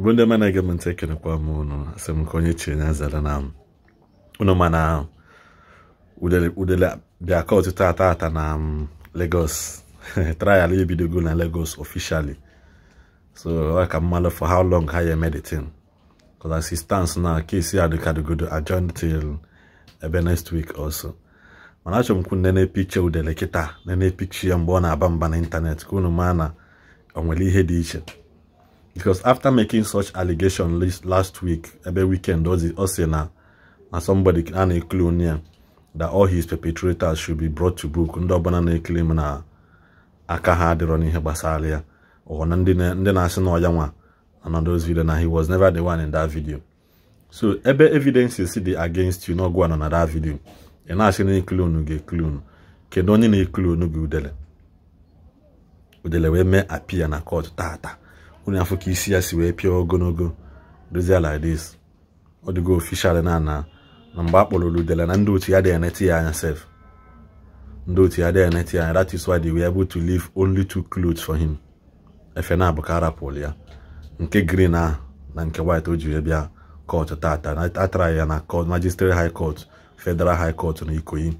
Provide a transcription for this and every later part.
igbo ndị mana ege m ntị ekelekwa m ụnụ asị m ka onye chiri na azara na ụnụ mana udele bịa kot tata ata na Lagos trial ebidogo na Lagos officially so ọ ka mmalụ for how long ha ya eme the thing because as it stands now case adịkadogodo adjourn till ebe next week also mana achọrọ m kwu nene picha udele kịta nene picha ya mgbe ọ na-aba mba n'ịntanetị ka unu na o nwere ihe dị iche because after making such allegation last week ebe weekend ọ sị na somebody a na-ekele ya that all his perpetrators should be brought to book ndị ọbụla na-ekele na aka ha adịrọ n'ihe gbasara ya ọ na ndị na-asị na nwa na those video na he was never the one in that video so ebe see dị against you n'ọgwụ anọ na that video ị na-asị na ekele unu ga-ekele unu kedu onye na unu gị udele udele wee mee apia na kọt tata unu afọ ka isi ya si wee pịa ogologo dozie ladis ọ dịgo ofishal na na mgbe a kpọrọ na ndị otu ya dị eneti ya anya sef ndị otu ya dị eneti ya that is why they were able to leave only two clothes for him efe na abụ arapụl ya nke green a na nke white o jiri bịa kọt tata traị ya na kọt magistrate high court federal high court na ikoyi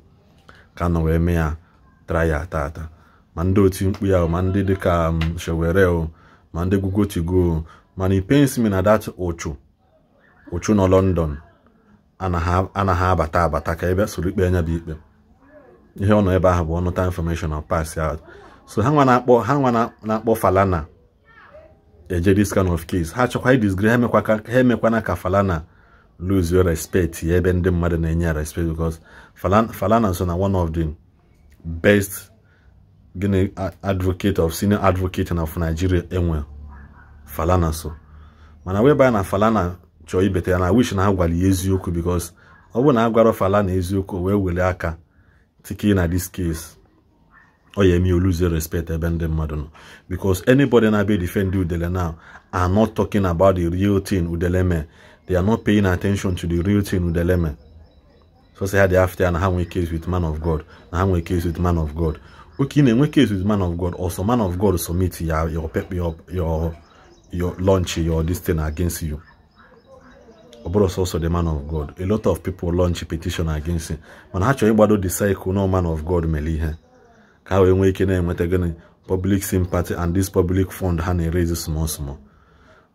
ka nọ wee mee ya ya tata ma ndị otu mkpu ya ma ndị dịka um, shewere ma ndị gụgo to mana it me na dat ụchụ ụchụ nọ London anaghị abata abata ka ebe soro ikpe anya bụ ikpe ihe ọ nọ ebe ahụ bụ ọnụta infọmeshọn na pass so ha nwa na-akpọ ha nwa na-akpọ Falana eje this kind of case ha chọkwa disgrace ha emekwana ka Falana lose your respect ya ebe ndị mmadụ na-enye ya respect because Falana so na one of the best gịnị advocate of senior advocate of Nigeria enwe Falana so mana wee baa na Falana chọọ ibete ya na wish na Agwali eziokwu because ọ bụrụ na Agwara Falana eziokwu wee were aka tiki na this case ọ ya eme respect ebe ndị mmadụ nọ because anybody na be defend udele now are not talking about the real thing udele mee they are not paying attention to the real thing udele mee so say ha dey after ya na ha nwee case with man of God na ha nwee case with man of God oke ị na-enwe case with man of god also man of god submit ya your pep your your your launch your this thing against you ọ bụrụ sọsọ the man of god a lot of people launch a petition against him mana ha chọrọ ịgbado the cycle na man of god mere ihe ka ha wee nwee ike na-enweta gịnị public sympathy and this public fund ha na-erezi small small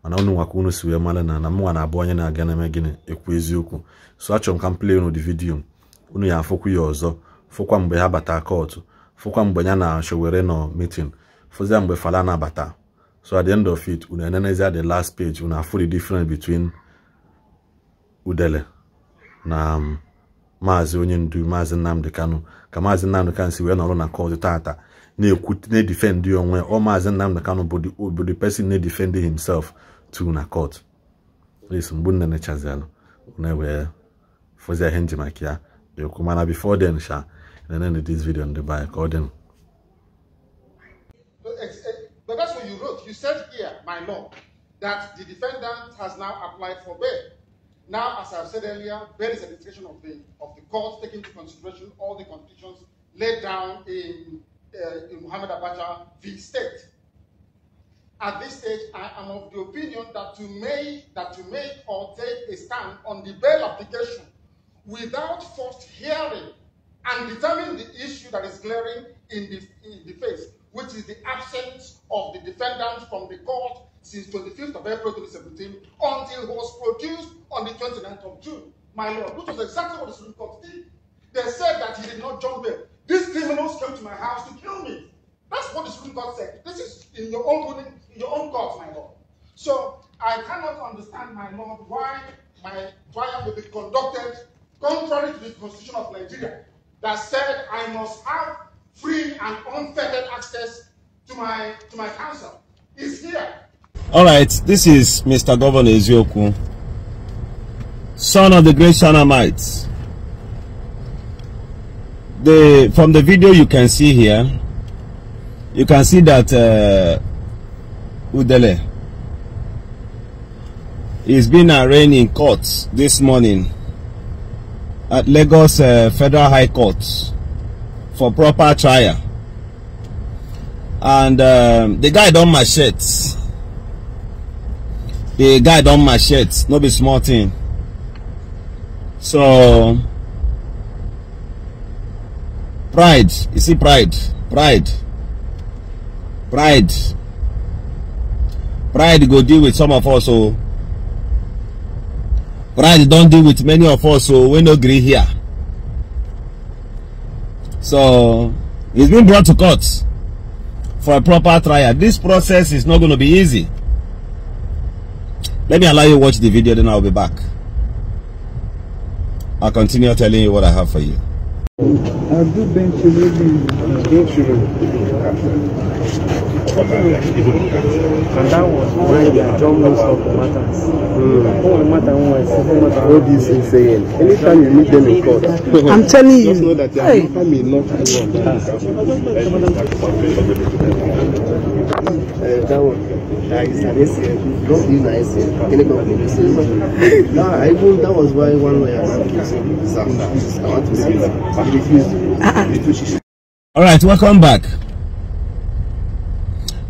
mana unu nwaka unu si wee mara na na mụnwa na-abụ onye na-aga na-eme gịnị ekwu eziokwu so achọrọ m ka m play on the video unu ya afụkwu ya ọzọ fụkwa mgbe ha bata kọtụ fukwa mgbe ya na Sowore nọ meeting fụzia mgbe Fala na-abata so at the end of it una enenezia the last page una full the difference between udele na um, maazị onye ndu maazị Nnamdi Kanu ka maazị Nnamdi Kanu si wee nọrọ na kọt tata na-ekwu na-edifendị onwe ọ maazị Nnamdi Kanu bụ the person na-edifendị himself to na kọt yes mgbe nne nechazialụ na-ewee fụzia ihe nji ya ekwu mana before then and ended this video on the by Call eh, But that's what you wrote. You said here, my lord, that the defendant has now applied for bail. Now, as I've said earlier, bail is a decision of the, of the court taking into consideration all the conditions laid down in, uh, in Muhammad Abacha v. State. At this stage, I am of the opinion that to make, that to make or take a stand on the bail application without first hearing and determine the issue that is glaring in the, in the face, which is the absence of the defendant from the court since 25th of April 2017 until was produced on the 29th of June, my lord, which was exactly what the Supreme Court did. They said that he did not jump bail. These criminals came to my house to kill me. That's what the Supreme Court said. This is in your own in your own court, my lord. So I cannot understand, my lord, why my trial will be conducted contrary to the constitution of Nigeria that said I must have free and unfettered access to my, to my counsel is here. All right, this is Mr. Governor Ezioku, son of the great Shanamites. The, from the video you can see here, you can see that uh, Udele is being arraigned in court this morning at Lagos uh, Federal High Court for proper trial. And um, the guy done shirt. The guy done machetes. No be small thing. So, pride. You see pride. Pride. Pride. Pride go deal with some of us. Oh. So, right don deal with many of us so we no gree here so he's been brought to court for a proper trial this process is not going to be easy let me allow you watch the video then i'll be back i'll continue telling you what i have for you Abdou Ben Chirodi. Ben Chirodi. What is he saying? Anytime you meet them in court, I'm telling you. Just know that your hey. matter not that one. That is Don't be nice Can you I thought that was why one way All right, welcome back.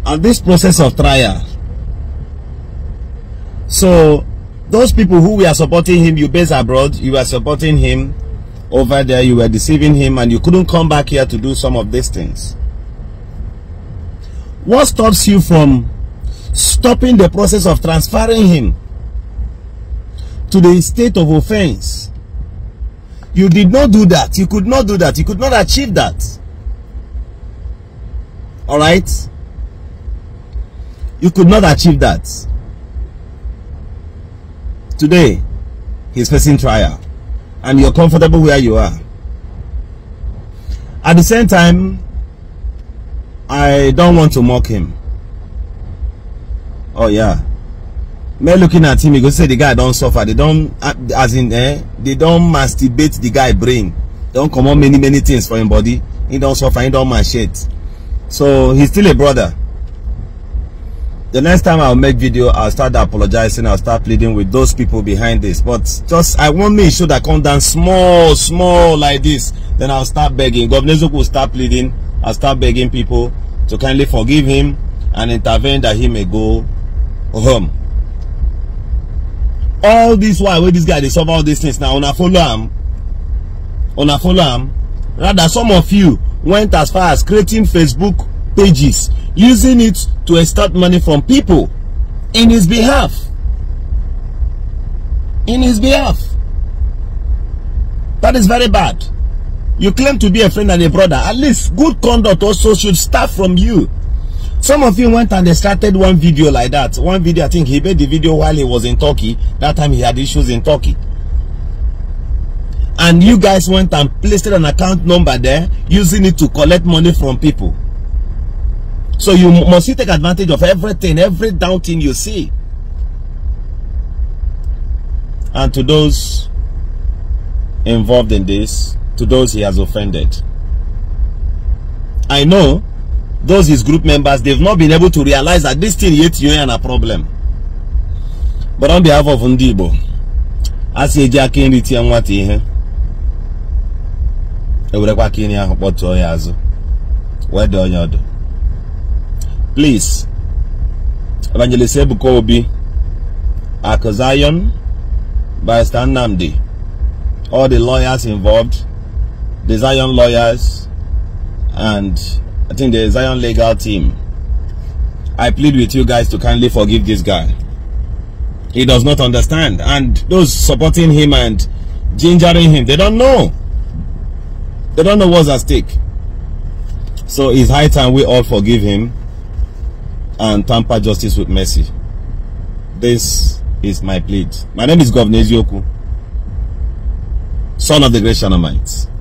At this process of trial, so those people who were supporting him, you based abroad, you were supporting him over there, you were deceiving him, and you couldn't come back here to do some of these things. What stops you from stopping the process of transferring him to the state of offense? You did not do that. You could not do that. You could not achieve that. All right? You could not achieve that. Today, he's facing trial and you're comfortable where you are. At the same time, I don't want to mock him. Oh yeah. Men looking at him, he go say the guy don't suffer. They don't, uh, as in, eh, they don't masturbate the guy brain. don't come on many, many things for him body. He don't suffer, he don't shit. So he's still a brother. The next time I'll make video, I'll start apologizing. I'll start pleading with those people behind this. But just, I want me should I come down small, small like this. Then I'll start begging. Governor Zoku will start pleading. and start begging people to kindly forgive him and intervene that he may go home. All this while, where this guy they solve all these things now, on a follow him, on a follow him. Rather, some of you went as far as creating Facebook pages, using it to extort money from people in his behalf. In his behalf. That is very bad. You claim to be a friend and a brother. At least good conduct also should start from you. Some of you went and they started one video like that. One video, I think he made the video while he was in Turkey. That time he had issues in Turkey. And you guys went and placed an account number there, using it to collect money from people. So you must take advantage of everything, every down thing you see. And to those involved in this, to those he has offended. I know those his group members, they've not been able to realize that this thing yet you and a problem. But on behalf of Ndibo, I say Jackie and Riti and what he Ewurekwa ka ị na-ahụ kpọtụọ ya please Evangelist Ebuka Obi Akụzayon Barrister Nnamdi all the lawyers involved the Zion lawyers, and I think the Zion legal team. I plead with you guys to kindly forgive this guy. He does not understand. And those supporting him and gingering him, they don't know. They don't know what's at stake. So it's high time we all forgive him and tamper justice with mercy. This is my plea. My name is Governor Ezioku, son of the great Shanamites.